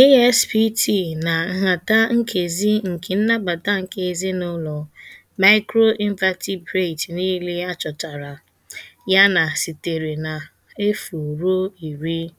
ASPT na nhata nkezi nke nnabata nke ezinụlọ microinvertebrate niile achọtara, ya na sitere na 0 ruo 10.